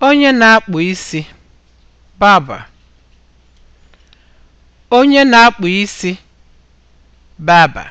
Onye na-akpụ isi (barber) Onye na-akpụ isi (barber)